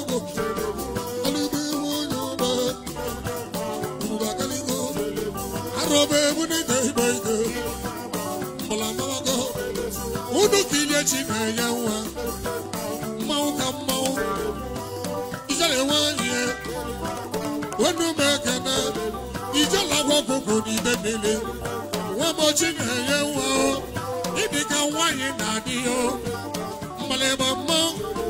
unu ka ilechi na-enye nwa mmanwụ ka mmanwụ ijele nwanyị onu m ekene ijele na-enye nwa ịdị ka na-adịghị mmalịba mmanwụ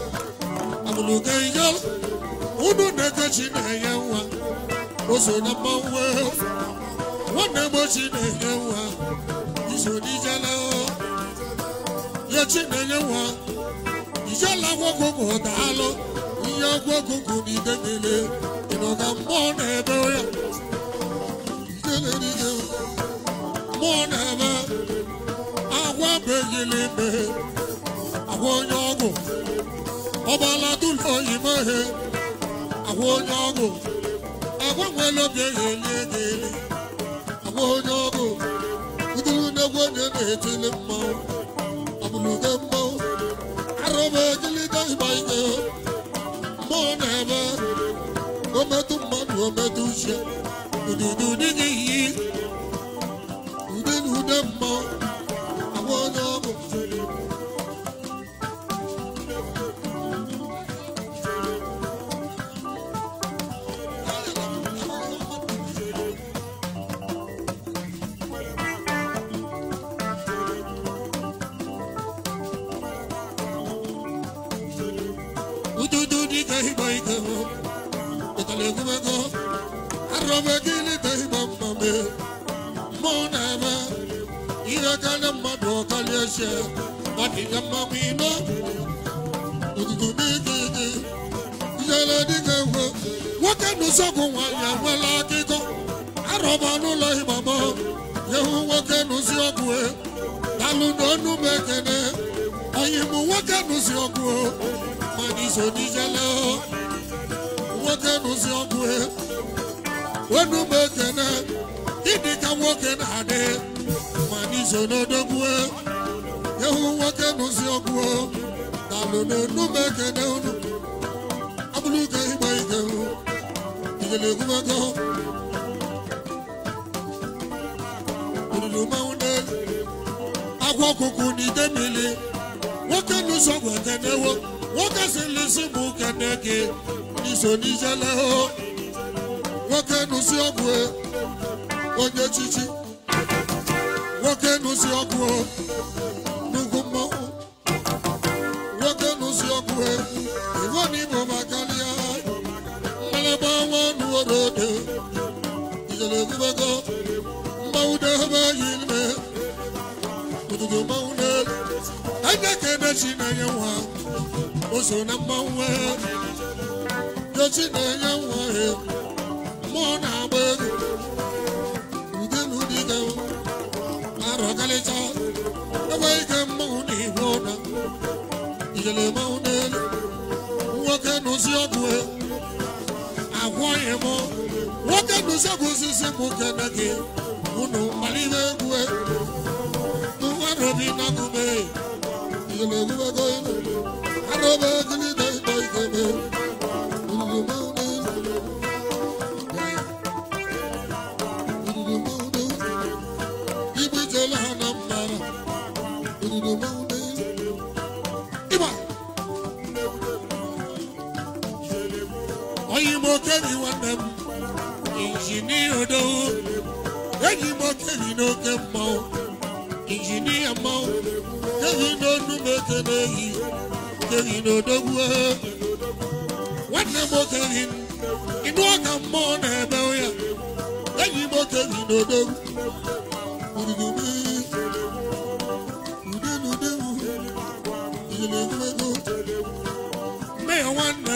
muluge yo unu neke chinenye nwa oso na mmanwe nwanne m chinenye nwa iso n'ijele ya chinenye nwa ijele agwọgwụgwụ daalụ ihe agwọgwụgwụ na idegele ịnọ na mmụọ na-ebe ya mmụọ na-ebe agwa begili ebe agwa onye ọgwụ ọba aládùn òyìnbó he àwọn onye ọgwụ agbanwe lóbi ehele gele àwọn onye ọgwụ uduru n'egwu onye na-etili mmanwụ ọbụlude mmanwụ arụba egilide ịgba ike mmụọ na-ebe ometụ mmadụ ometụ uche ududu na-eme ihe karịa mmadụ ọkarịa eze ọ mmanwụ ime otutu n'ike ike ihere dịka ekwe nwoke n'ụsọgwụ nwaanyị enwela akụkọ arọba n'ụlọ ịgbama yehu nwoke n'ụzi ọgwụ dalụ n'ọnụ m ekene onye mụ nwoke n'ụzi ọgwụ mana iso nwoke n'ụzi onu m ekene Ndị ka nwoke na-adị ma n'iso n'odogwu ehu nwoke n'ụzi ọgwụ talụ n'onume ekene unu abụrụ ụka ịgba ike igele egwumego olulu mmanwụ na agwa ọkụkụ na ide mmiri nwoke n'ụzọ ọgwụ ekenewo nwoke silisi bụ kene gị n'iso n'ijele nwoke n'ụzi ọgwụ e. onye chichi nwoke nụsi ọgwụ n'ugwu mmọnwụ nwoke nụsi ọgwụ e, iwe n'igbo maka ya mmalaba nwa ọnụ were odo ijele egbubego mmanwụ dehebe yi ime ụtụtụ mmanwụ n'elu anya ka na-enye nwa o so na mmanwụ dochi na-enye nwa e, mmụọ na-agba ego ọmalịcha ebe ike mmanwụ na iwe ụda ijele mmanwụ n'elu nwoke nụzi ọgwụ e. agwọghị m nwoke nụzi ọgwụ osisi m kene gị egwu e. na ijele egwubego ilu okebi nwanne m injinia odowo eji m okebi n'oke mmanwụ injinia mmanwụ kebi n'onu m eke na-eyi kebi n'odogwu nwanne m okebi ịnụ ọka mmụọ na-ebe ya eji m okebi nwanne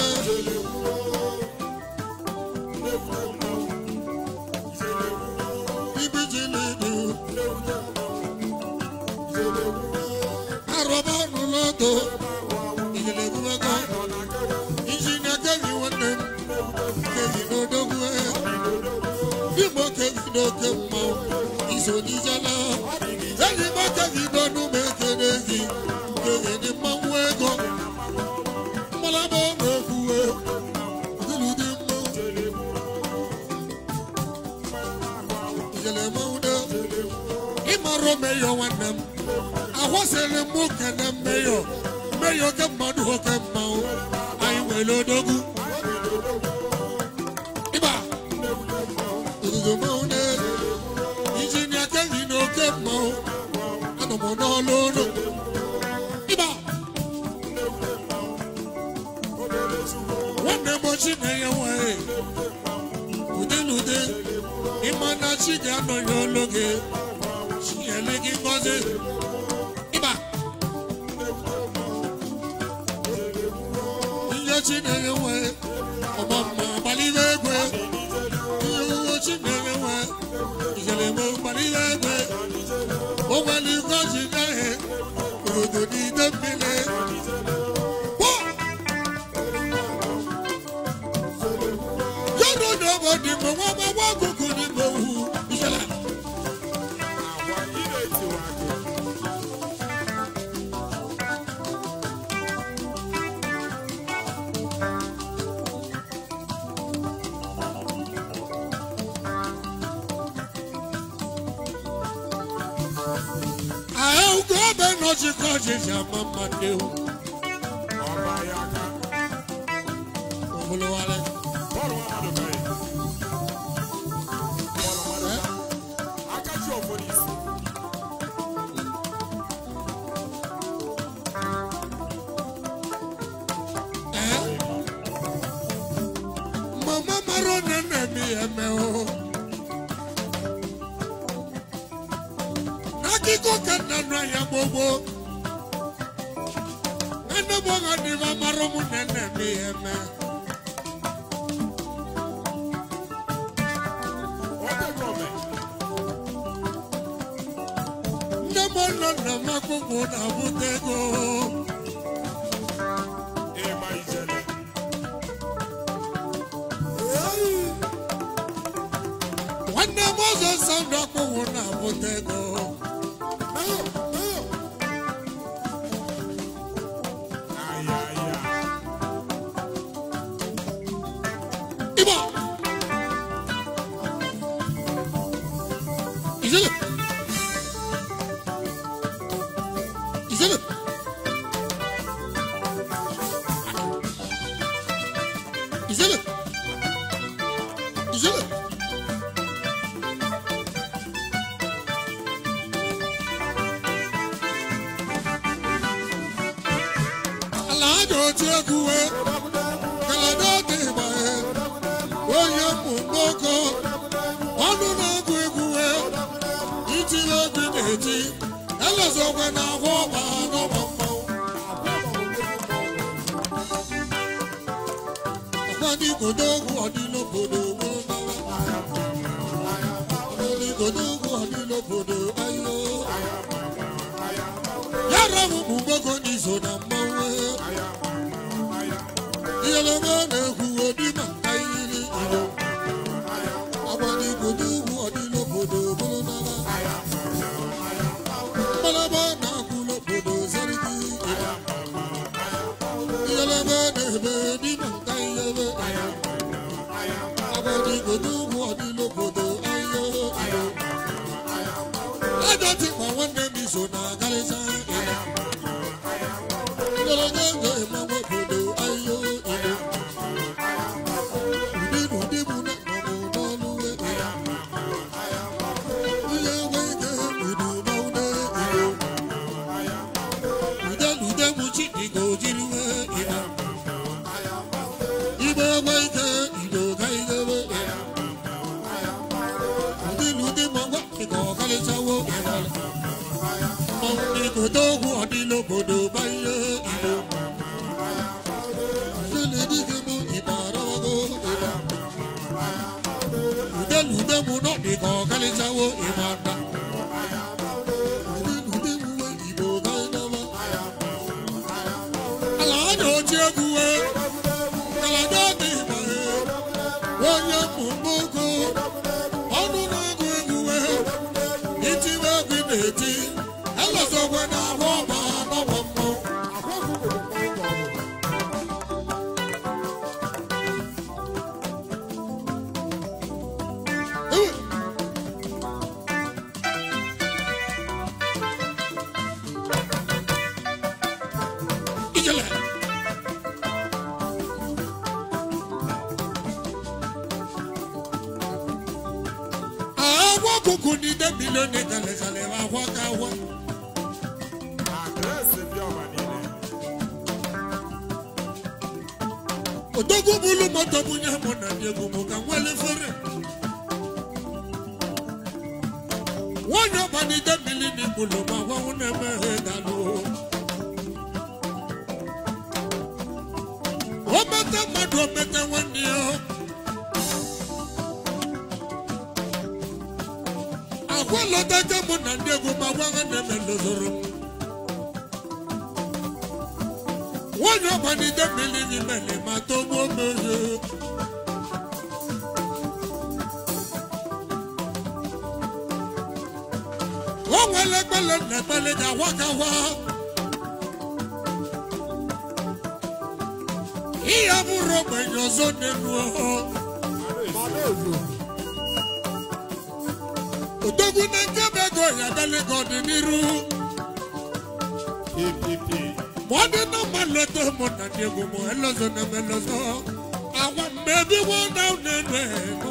igbo kegide oke mma go you Iba. na-eme ụkpara egwe ụgbọelu gozi gaghị obodo n'ide mmiri yọdụ na obodo igbo nwa ọjị ka ọjịji ama mma gbogbo enugboghọdịba mara ụmụnne nne m ihe eme nne m nọ nna m akwụkwọ na-abụta ego nwanne m nsọ na-abụta ego na-eti egwu wee ka adọta onye mụ ọnụ na-agụ egwu wee na-eti elezogwe na ahụ ọba ha n'ọba mmanwụ ọgbadị igodo ogwu ayo ọlọ́run kù gbogbo ní ìṣòdà mọ́wé. ìyẹlẹmọ lẹ́kù onímọ̀ ayírí ìlú. àbọ̀dì kùdú wù ọdún lóbodò bọ́lọ́dọ́lá. bọ́lọ́bọ́ náà kú lóbodò sẹ́ríkì ìlú. ìyẹlẹmọ lẹ́bẹ̀ẹ́ nímọ̀ ayírí ìlú. àbọ̀dì kùdú. mu náà nìkan kálí sáwó ìmọ̀ àgbà. ọwọ́ kùkù ní débi lónìí tẹ̀lẹ̀tẹ̀lẹ̀ wá wọ́káwọ́. àdírẹ́sì bí ọ̀bà nílẹ̀. bulu mọ́tò mú ní àmọ́nà ní egungun kan wọlé fẹ́rẹ̀. wọ́n yọ ọba débi ní bulu mọ́ àwọn ọ̀nà mẹ́rin dànù. ó mẹ́tẹ́ mọ́tò mẹ́tẹ́ wọ́n ní ọ́. kwalọtacha mụ na ndị egwu ma gwa ha na-eme ndozoro nwanyị ọgbanide mmiri n'imele ma togbuo mmezi o nwere ekpele na ekpele ga odogwu na nkebe ego ya adalago ọdịnihu ma ọ dị na mma leta mụ na ndị egwu m elozo na elozo agwa mgbe ebiwo na na-enu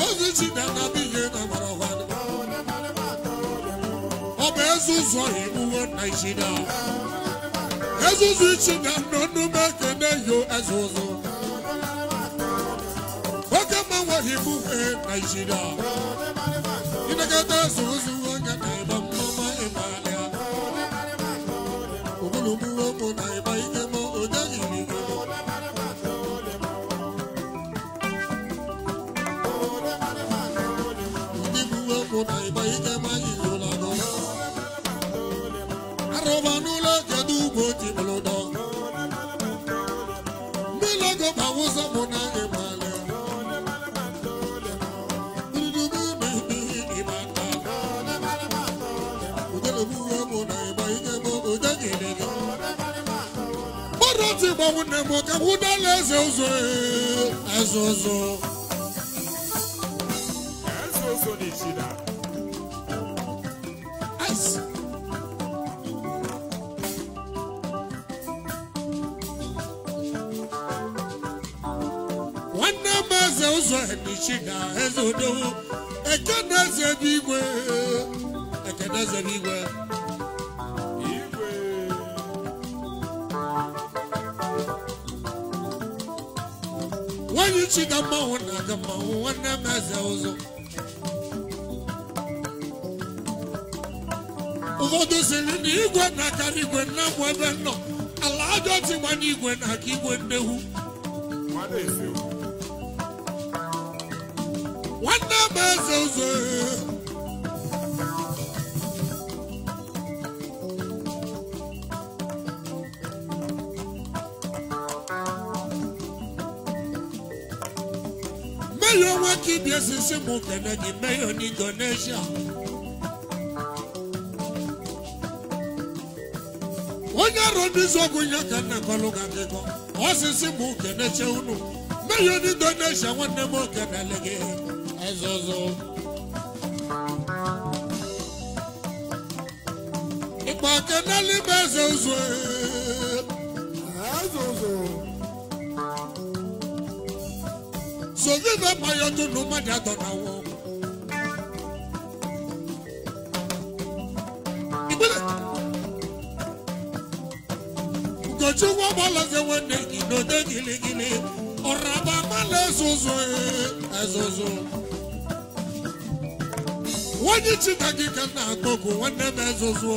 obozi ji na anabi ihe na agbara ọwa ọ bụ ezuzu ụzọ iwuwe naijiria ezuzu ichi na nọ na ekene oke mmanwe iwuwe naijiria ịnagata ezuzu onye na-eme mmụma na ịma ntị gbanwu nne m ka wudala eze ụzọ eze ụzọ nwanne m eze ụzọ ebichiga eze odowo ekene eze igwe ekene eze igwe ichi ga mmanwụ na-aga mmanwụ nwanne m eze ụzọ ụfọdụ siri na igwe na-akara igwe na m ebe nnọọ ala ajọ tigba igwe na-aka igwe nnewu nwanne m eze ụzọ Yesu simu kene ni meyo ni Ganesha. Onye robizo gunya kene koluga keko. Osi simu kene che unu. Meyo ni Ganesha wane mo kene lege. Ezozo. Ipa kene libe zozwe. Ezozo. Ezozo. So you know my other no matter than I wọ́n bọ́ lọ́sẹ̀ wọ́n ní ìdòdó giligili, ọ̀rọ̀ àbá má lè soso ẹ̀ soso. Wọ́n yí chita kíkẹ́ náà gbogbo wọ́n ní bẹ́ẹ̀ soso.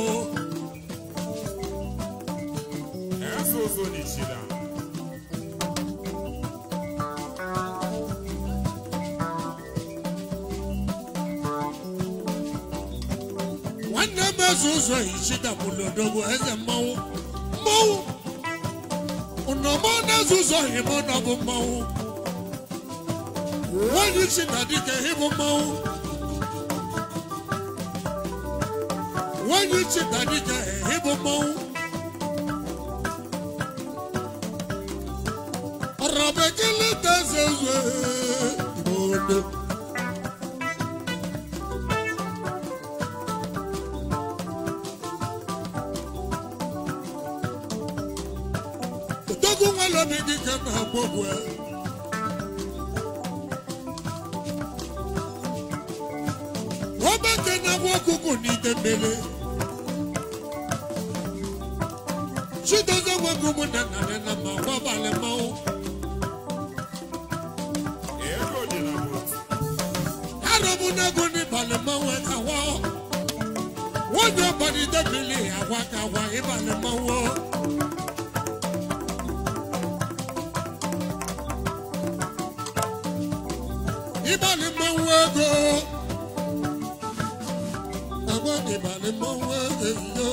Ẹ̀ soso ní chita. na-eso ụzọ ichidapụrụ odogwu eze mmanwụ mmanwụ na-eso ụzọ hịmụ na bụ mmanwụ nwaanyị chi na dike hịbụ mmanwụ nwaanyị chi na dike hịbụ mmanwụ ọrọbekele ka eze obi dị ka m na-akpọgbu ọgbakọ na-agwa ọkụkụ n'ite mmiri chidozie nwoke na ma gwa abalị mmanwụ n'ịbalị mmanwụ ọbalị agwa ịbalị mmanwụ ịgbalị mmanwụ ego agwa ịgbalị mmanwụ ego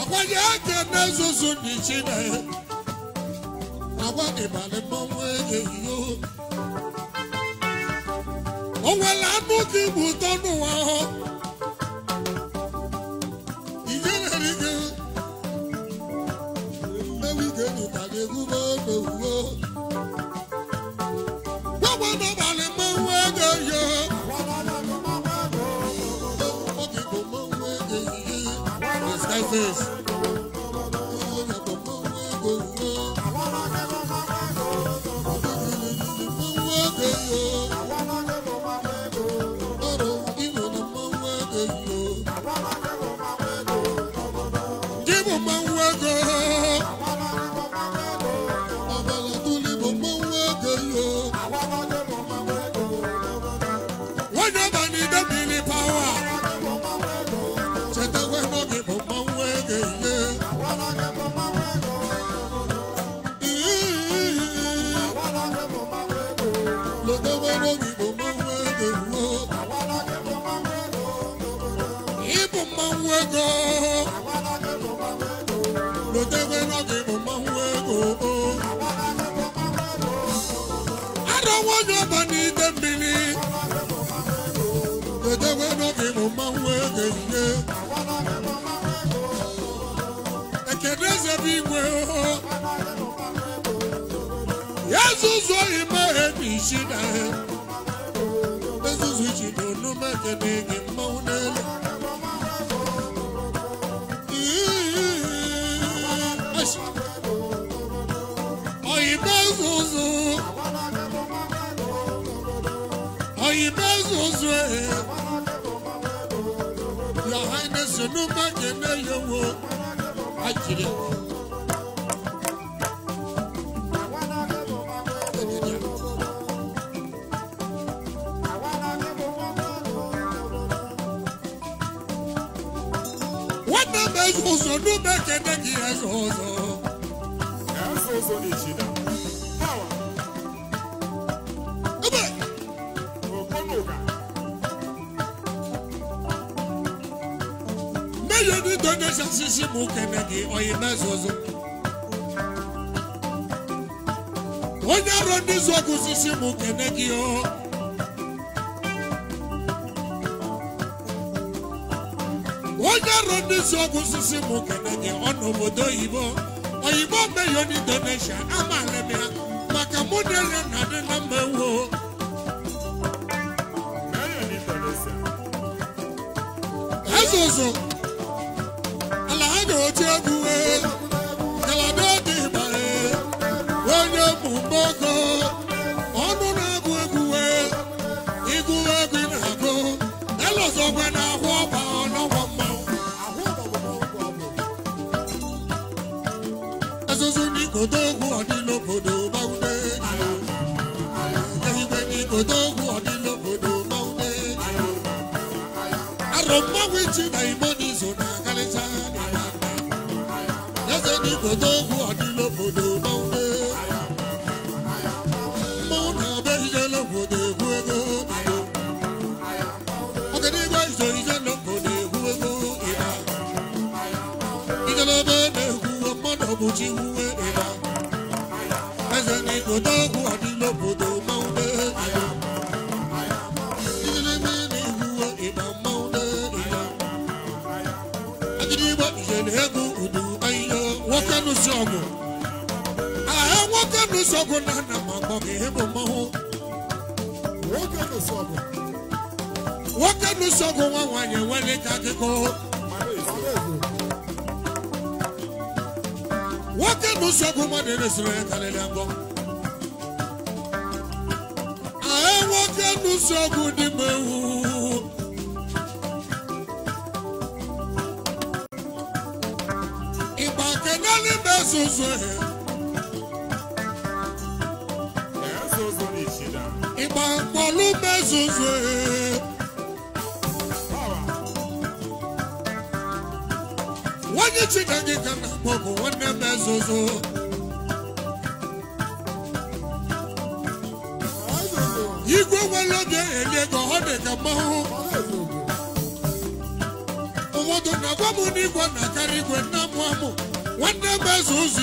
agwanye aka na-ezuzu ndị chineke agwa ịgbalị mmanwụ ego o nwere anụ dị bụ ụtọ n'ụwa ahụ ihe rere gị mmewi ga-enyotarị egwu like this. zoi mare bishina Bezu zuji donu makenege maunale Ay bezuzu Ay bezuzu Ya hayne sunu makene yowo ezuzo dube kede gị ezuzo ebe meyo ni donation sisi mụ kene gị oyi mezuzo onye ọrụ ndị zọgụ sisi mụ kene gị o ndị si ọgwụ osisi mụ kenege ọ nọ obodo oyibo oyibo meyo n'indonesia amaala m ya maka mụ na ele na adị na mma ewu ezozo ala ha ga-oche egwu wee ichi na igbo n'izu na-agarịcha eze n'igbo n'ogwu ọdịla obodo n'ofe na-abịa obodo egwu ego izo obodo egwu ego na sogun nana mambo kihemu mahu. Woke no sogun. Woke no sogun wa wanye wale takiko. Woke no sogun ma dene sire kale lembo. Ae woke no sogun di mewu. Iba kenali mesusu. ịgba nkwalube zuzu na-akpọ bụ nwanne m igwe nwere oge ọ na-agwa m n'igwe na-akarị igwe na-amụ amụ nwanne m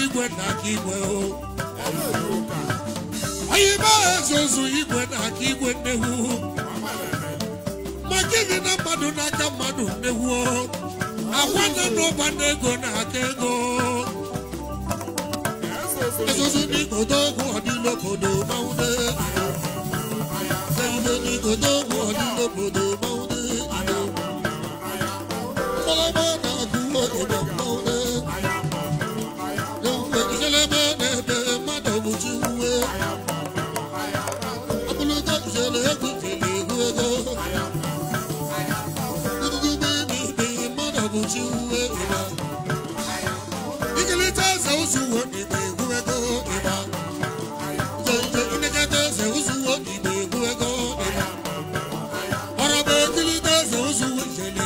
igwe na-aka igwe o anyị baa ezozu igwe n'aka igwe nnewuo ma gịnị na mmadụ n'aka mmadụ nnewuo akwa nọ n'ụba n'ego n'aka ego ezozu n'igodo ogwu ọdịla obodo mawude ezozu n'igodo ogwu ọdịla obodo mawude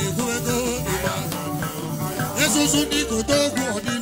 ìkú ego. Jésù sún ní kò tó gùn ọ̀dí.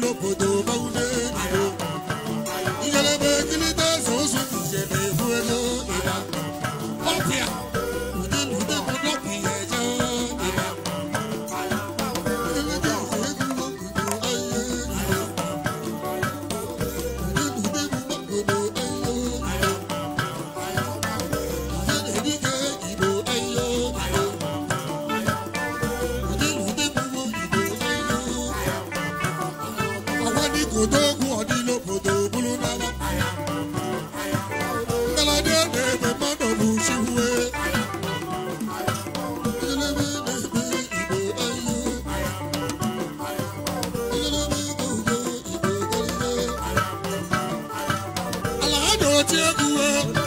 tí ó kú o ku